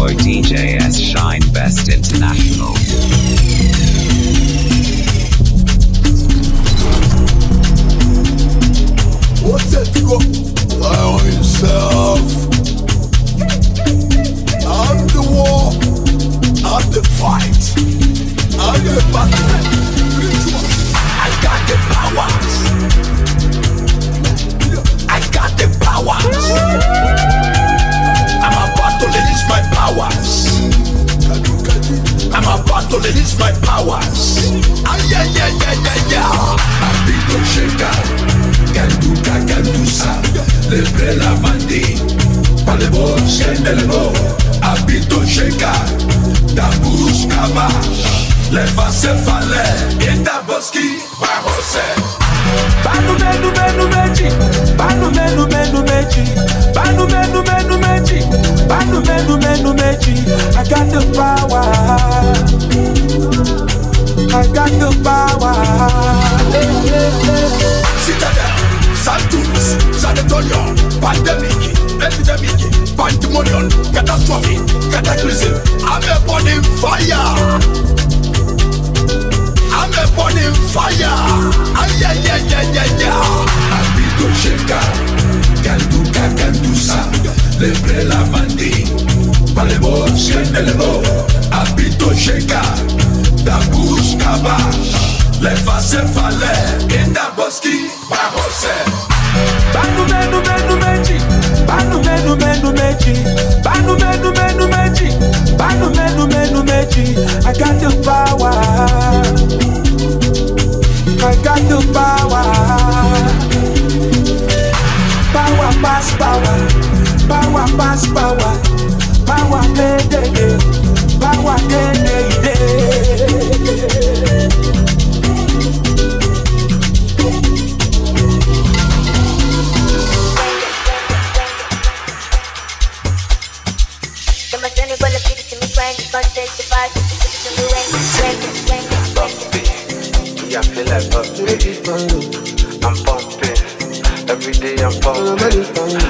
for DJS Shine Best International. What's that you got? Allow yourself. I'm the war. I'm the fight. I'm the battle. I got the power. I got the power powers. I'm about to release my powers. Ah, yeah, yeah, yeah, yeah, yeah. I'm big to shake out. Can do ka, can do sa. Lebre la mandi. Palebo, shendelebo. I'm big to shake out. Dabus kamash. lẹ́fà ṣe falẹ̀ ìdàbọ̀sí pàhọ́sẹ̀. bánú mẹ́nu mẹ́nu méjì bánú mẹ́nu mẹ́nu méjì bánú mẹ́nu mẹ́nu méjì bánú mẹ́nu mẹ́nu méjì I got the power. I got the power. Citadel, Santos, Sanatorium, Pandemic, Epidemic, Pandemonium, Catastrophe, Cataclysm, I'm a burning fire. we're burning fire. Ay, ay, ay, ay, ay, ay. Habito checa, canduca, candusa, lebre la mandi, palebo, sienelebo. Habito checa, da busca leva se falé, e da bosque, pra você. Vai no menu no meio, no menu vai no meio, menu meio, no meio, vai no I got your power. I got the power. Power pass power. Power pass power. Power day day day. Power day day day. me, I feel like pumping. I'm pumping. Every day I'm pumping.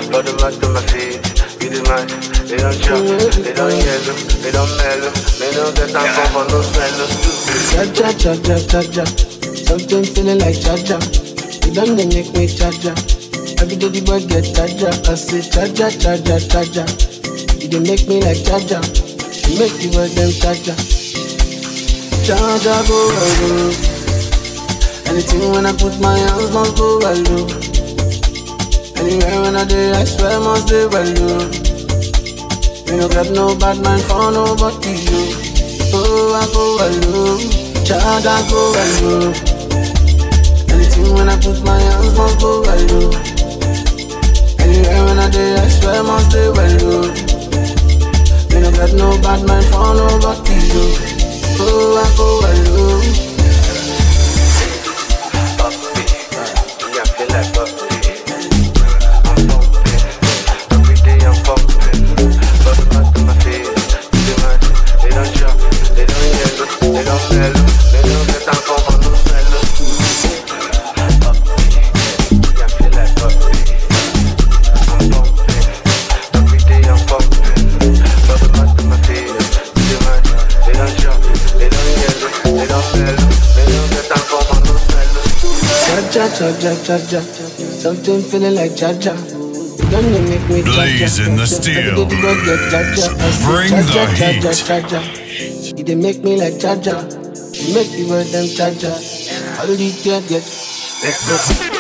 Put them out to my feet. beating my man. They don't jump. They don't yellow. They don't mellow. They don't get time for no smell. Cha cha cha cha cha cha. Sometimes feeling like cha cha. You done they make me cha cha. Every day the boy get cha cha. I say cha cha cha cha cha cha. You don't make me like cha cha. You make the boy them cha cha. Cha cha boy. Anything when I put my hands must go well do. Anywhere when I do, I swear must be well you. Me no grab no bad man for nobody you. Oh, I go well you, Child, I go well you. Anything when I put my hands must go well do. Anywhere when I do, I swear must be well you. Me no grab no bad man for nobody you. cha-cha. Something feeling like cha-cha. Don't make Blazing the steel. Bring the heat. You didn't make me like cha-cha. You make me wear them cha-cha. How did you get?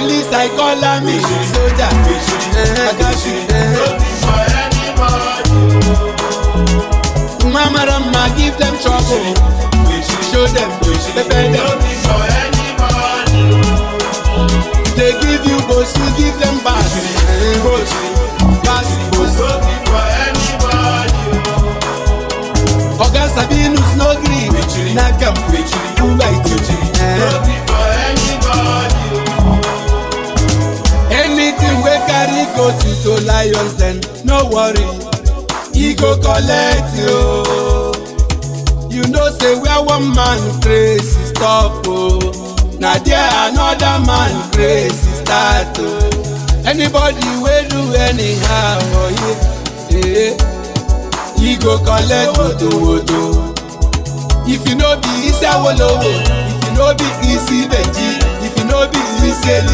police i call am soldier eh, akashi. Eh, eh, mama Rama, give them trouble. Show them, prepare them. Let you, you know say where one man crazy stop oh. Now there another man crazy start oh. anybody will do anyhow oh yeah. eh e go collect wotowoto if you know be isi awolowo if you know be isi benji if you no be isi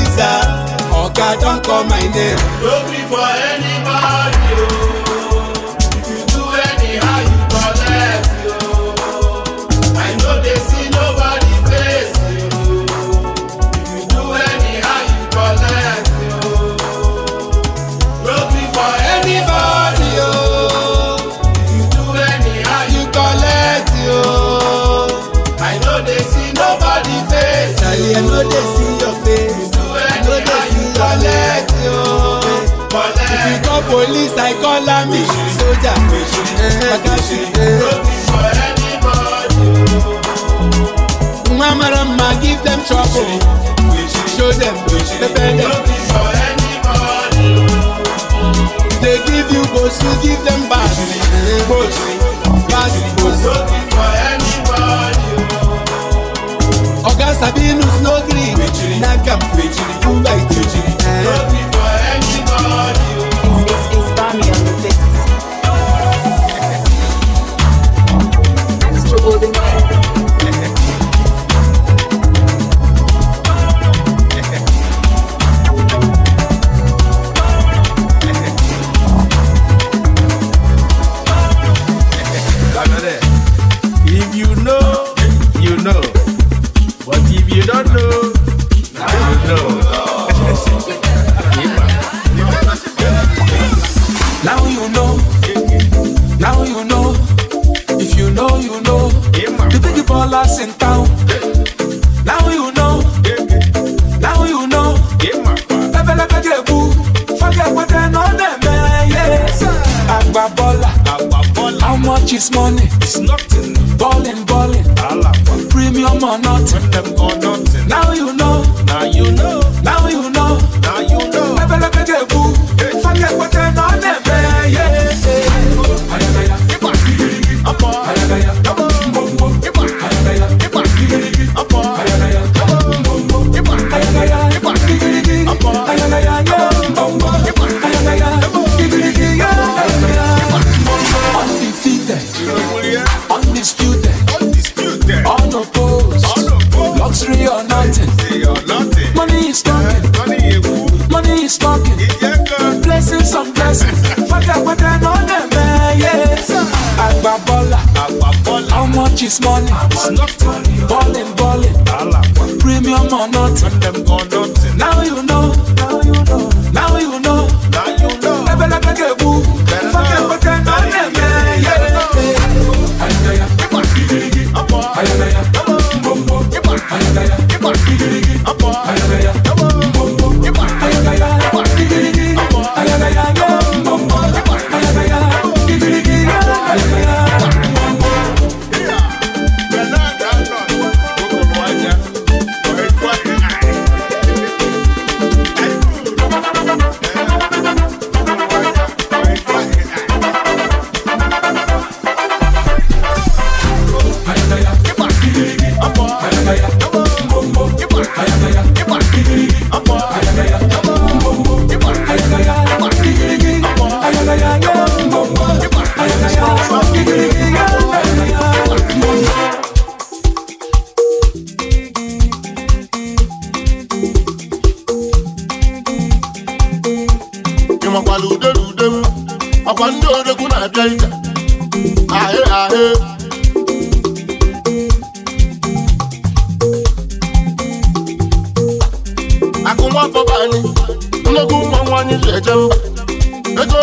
oh God don't call my name. Don't be for anybody oh. Eh. Mama, mama, give them trouble. Show them, defend them. It's money. It's nothing. Ballin', ballin'. Alapa. Premium or nothing. With them or nothing. Now you know. Now you know. No oppose. Luxury or nothing. Money is talking. Eh, money is talking. Blessings on blessings. Fagabata on them, eh, yeah. Agbabola. How much is money? Ballin', ballin'. Premium or nothing. Now you know.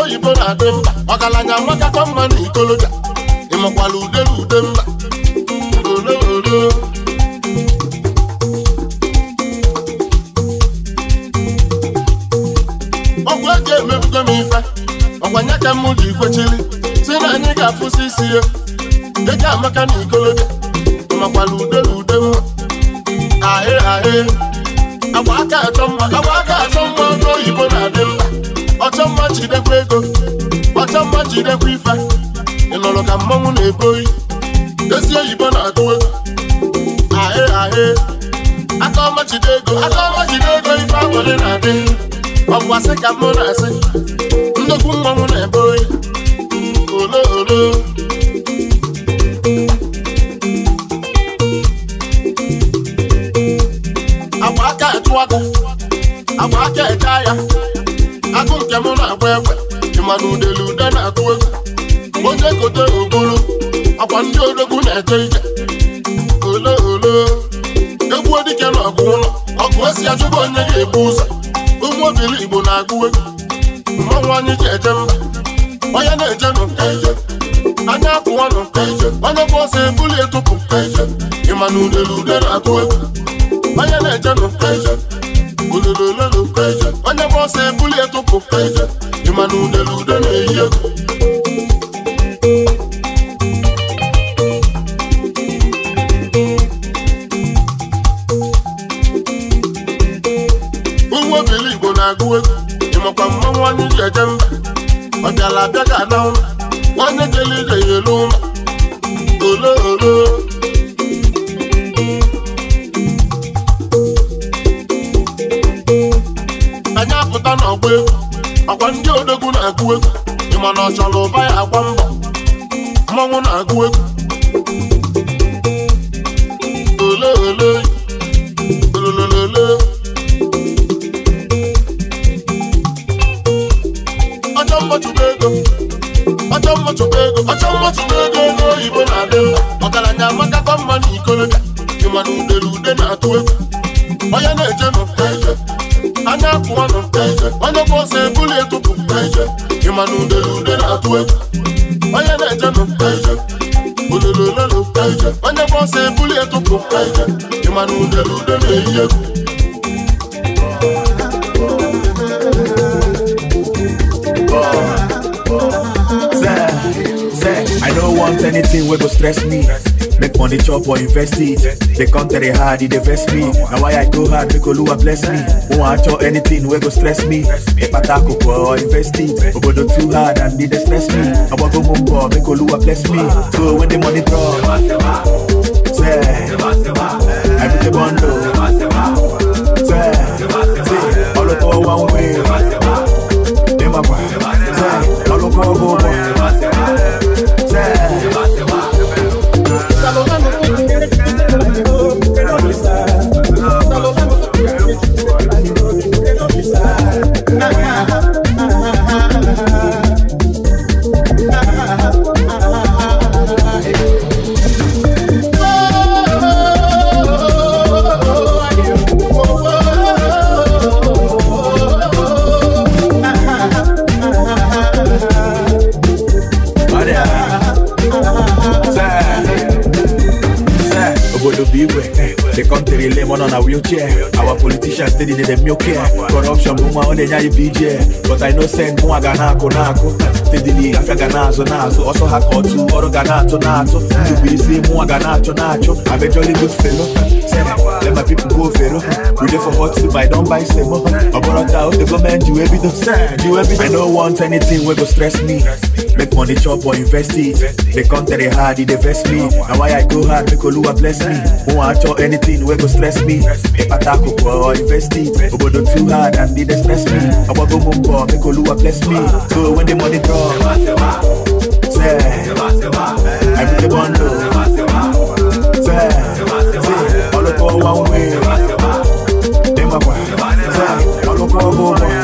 oyibo na-adị mma ọgaranya amakakọ mma na ikoloja ịmakwala ude na ude mma olololo ọgwụ eji emebugo m ife ọkwanye ka m ji kwechiri si na anyị ga-afụsi isi ya eji amaka na ikoloja makwala ude na ude mma ahị ahị agwa aka achọ mma agwa aka achọ mma ọnụ oyibo na-adị mma jidekwa ego ọcha mma jidekwa ife ịnụrụ ka mmanwụ na-eboyi dozie oyibo na-agụwe ahe ahe aka ọma jide ego aka ọma jide ego ife agbụrụ na-adị ọ asị ka mụ na-asị nnukwu mmanwụ na-eboyi na-agụ egwu ịmakwa mmanwụ onye ije eje mba ọ bịala abịa ka na ụma nwanne jele ije ya elu ụma ole ole anyị apụta n'ọgba egwu ọkwa ndị odogwu na-agụ egwu ịma na ọ chọrọ ụba ya agwa mbọ mmanwụ na-agụ egwu na-eyi I don't want anything wey go stress me make money chop or invest it the country hard e invest me Now why i go hard make oluwa bless me wọn a chọ anything We go stress me ipata koko or invest it obodo too hard and e dey stress me ọgbọgbọ mo bọ make oluwa bless me so when the money drop Say. Everyday bundle. Say, say, all the power one way. Dem a boy, say, all the power Manenya ibije But I know send mwa gana konako Steadily afya ganazo se Also hakotu oro ganato nato Tubisi mwa ganacho na I'm a jolly good fellow Let my people go fellow We there for hot soup I don't buy semo Aboro tao the government you every day You every day I don't want anything wey go stress me Make money chop or invest it The country hard it dey vex me Na why I go hard make Oluwa bless me Won't I chop anything wey go stress me If I talk or invest it Obodo too hard and it dey stress me me. I want go move for make Oluwa bless me. So when the money drop, say, I put the bundle, say, say, all the one way, say, all the go boy.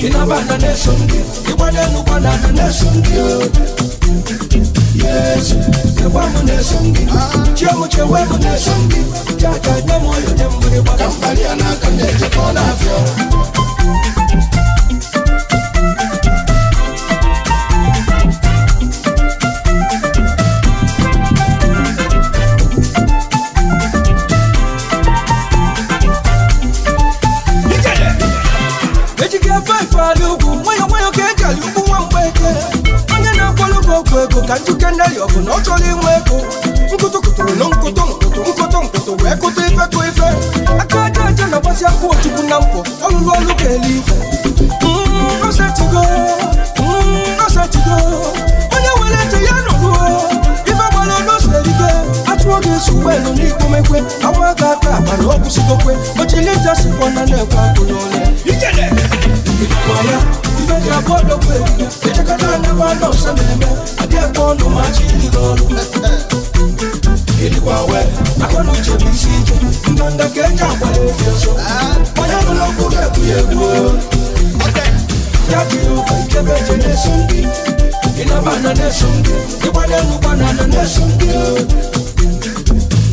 You na nation deal. Iwale nukwa na na nation Yes, nukwa mu nation deal. Chiamu chewe mu nation deal. Chaka nyemo yo nyemo ni wakambali anakande chakona ka njike ndeli ọgụ na ọ chọrọ inwe ego nkụtụkụtụrụ na nkụtụ nkụtụ nkụtụ nkụtụ wee kụtụ ife kụ ife aka aja aja na gbasi akwụ ochukwu na mpụ ọlụlụ ọlụ ka eli ife osetigo osetigo onye were ntị ya nụrụ ife gbara n'oserige atụọ ga-eso ụgbọelu n'ikomekwe awa aka aka akpa na ọgwụsigokwe ochilita sikwa na na-ekwe akụ n'ọlụ I ji abụọ dokwu ebube echekọta ndị nwa nọ ọsọ na-eme adị ekwe ọnụ ma chi juru ọrụ ịdịkwa wee akọ na uche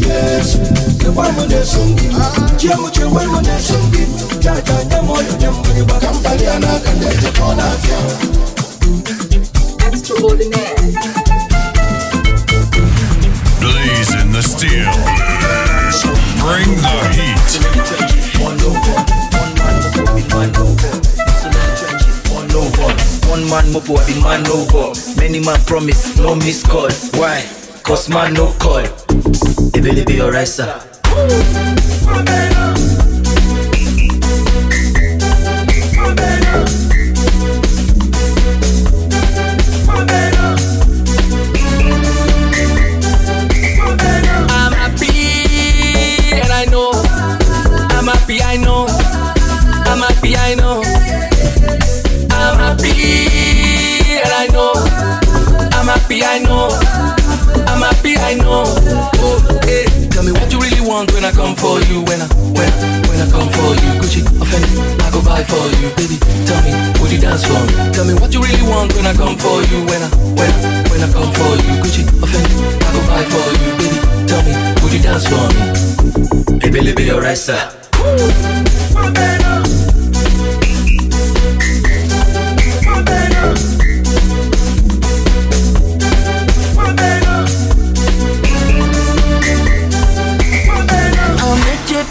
the steel bring the heat one over one man mo body man over one over one man mo man over many man promise no miss call why cause man no call it really be alright, sir. Lisa.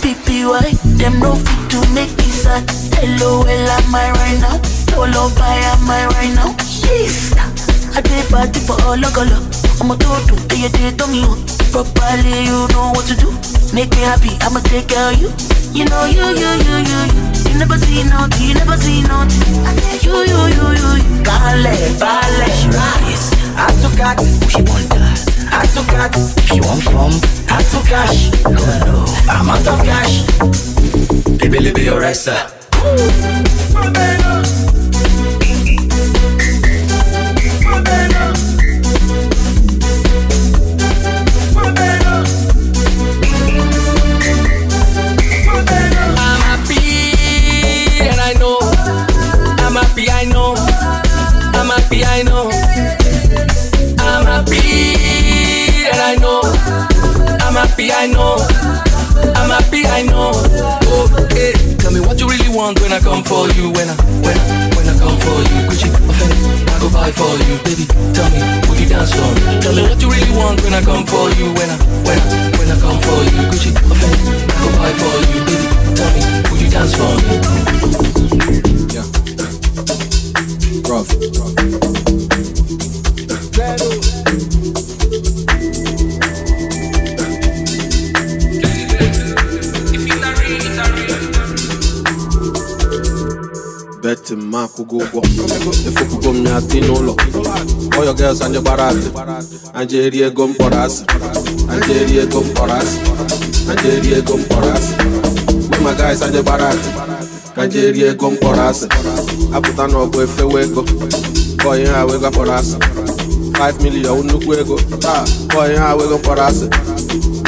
PPY, them no fit to make me sad. LOL, am I right now? Hello, buy, am I right now? Sheesh, I pay party for all of I'ma do do, do you did it on you Properly, you know what to do Make me happy, I'ma take care of you You know you, you, you, you, you You never see nothing, you never see nothing you, you, you, you, you Ballet, ballet, she rise I took out, oh, she want that I took out, she want from I took cash, no, no I'm out of cash Baby, leave your rest, sir Ooh, for you when I, when I, when I come for you. Gucci, offend, I go buy for you, baby. Tell me, would you dance for me? Tell me what you really want when I come for you. When I, when I, when I come for you. Gucci, offend, I go buy for you, baby. Tell me, would you dance for me? Yeah. Rough. Rough. beti mma akwụgo ụgwọ efupugo m ya dị n'ụlọ ọyọ gels anyị gbara asị anjeri eri ego mkpọrọ asị anyị eri ego mkpọrọ asị ego mkpọrọ asị mma guys anyị gbara asị ka anyị eri ego mkpọrọ asị apụta n'ọgụ efewe ego ka ihe ha wee five million ọ nnukwu ego taa bọyị ha wego kpọrọ asị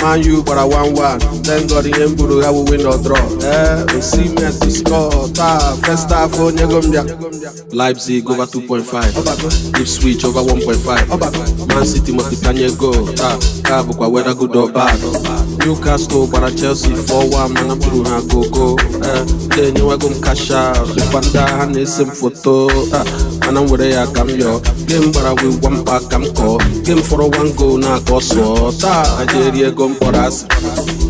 man u gbara one one. thank god ihe m buru ha bụ win or draw ee osimhen to score taa first half onye go mbịa Leipzig over 2.5 Ipswich over 1.5 Man City multiplying goal taa ka bụkwa whether good or bad Newcastle gbara Chelsea 4-1 mana m tụrụ ha gogo ee eh, na-enyewego m cash out rịkwanda ha na-ese m foto mana m were ya ka m yọọ game gbara wee gwa mkpa ka m kọọ game fọrọ one goal na-akọ sụọ taa ajeri ego mkpọrọ asị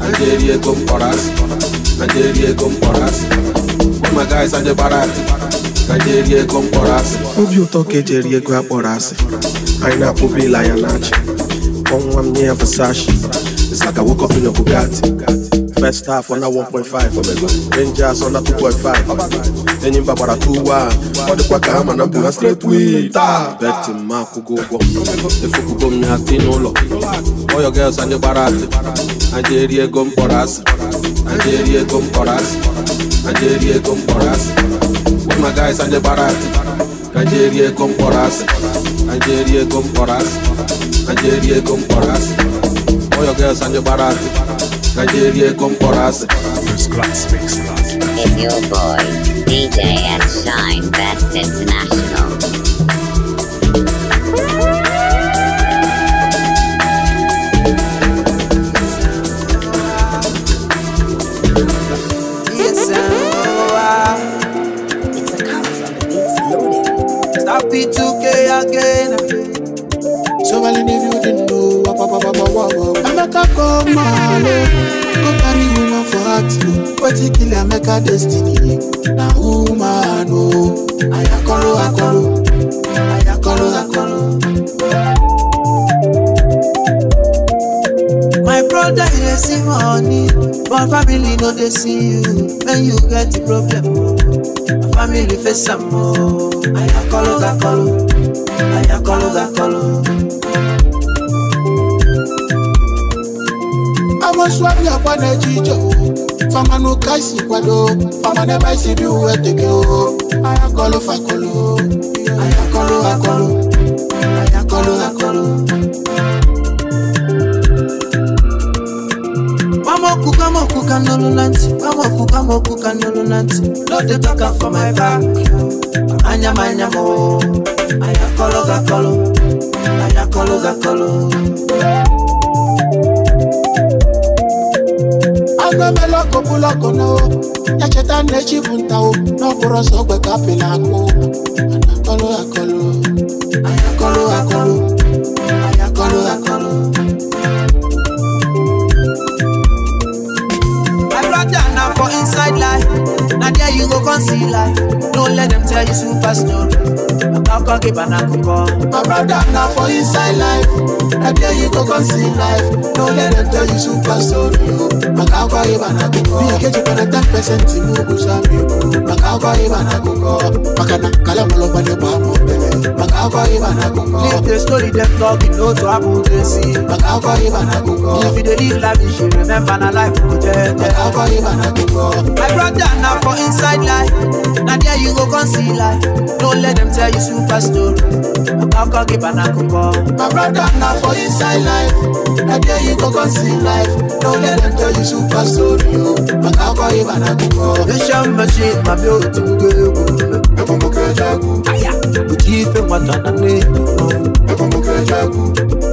ajeri ego mkpọrọ asị ajeri ego mkpọrọ asị ụmụ guys ajebara asị kajeri ego mkpọrọ asị obi ụtọ ka ejeri ego akpọrọ asị anyị na-akpụba ịla ya na achị ọnwa m nye ya Versace it's like I woke up in a Bugatti First half on a 1.5 Rangers on a 2.5 Enyimba bara 2-1 Wadi kwa kama na mbuna straight wita Beti maku gogo Efu kugo mnyati nolo All your girls anje barati Anje eri ego mporasi Anje eri ego mporasi Anje eri ego mporasi All my guys anje barati Anje eri ego mporasi Anje eri ego mporasi Anje eri ego mporasi All your girls anje barati Nigeria come for us. First class, first class. It's your boy, DJ at Shine Best International. amalo go carry woman for wetin kill emeka destiny na woman o ayakoro akoro ayakoro akoro. my brother you dey see money but family no dey see you when you get problem o family face am o ayakoro gakoro ayakoro gakoro. swabia kwa na jijo fama no kaisi kwado fama na baisi bi uwe teke o ayakolo fakolo ayakolo akolo ayakolo akolo Mamokuka mokuka nolo nanti Mamokuka mokuka nolo nanti No dey talk am for my back Anyama anyamo Ayakolo gakolo Ayakolo gakolo Ayakolo gakolo agbemela kobuloko no ya cheta na-echibu nta o n'ọbụrụ ọsọ ogbe ka apịla akụ mana akọlụ akọlụ akọlụ akọlụ akọlụ akọlụ my brother na for inside life now there you go come see life no let them tell you super story ọkọ gị bana akụkọ my brother na for inside life I tell you go come see life no let them tell you super story o maka akwa gị bana akụkọ ihe keji kwana 10 percent iwu bụ zambi maka go gị oh. bana akụkọ maka na kala mọlọgbanye bụ amụ mbe maka afọ ịba na akụkọ leave the story dem talk you know to happen to see maka afọ ịba na akụkọ if you dey live life you should remember na life go jẹ jẹ maka afọ ịba na akụkọ my brother na for inside life na there you go come see life no let dem tell you super story maka afọ ịba na akụkọ my brother na for inside life na there you go come see life no let dem tell you super story o maka afọ ịba na akụkọ vision machine ma bi otu ugbo egwu ekumbuke chagu uchife mwatana neno ekumbuke chagu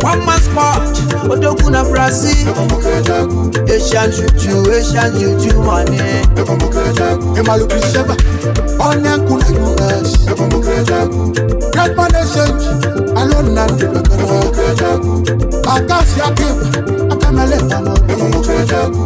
one man sport odogun na brazil ekumbuke chagu asian juju asian juju mane ekumbuke chagu emalu priseba onenku na us ekumbuke chagu great man exchange alone na ndebe ekumbuke chagu akasi akewa akamele pamọ ekumbuke chagu.